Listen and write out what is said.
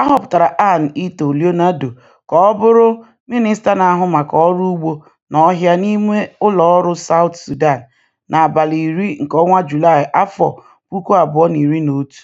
A họpụtara Ann Ito Leonardo ka ọ bụrụ minista na-ahụ maka Ọrụ Ugbo na Ọhịa n'ime ụlọ ọrụ South Sudan n'abalị iri nke ọnwa Julaị, 2011.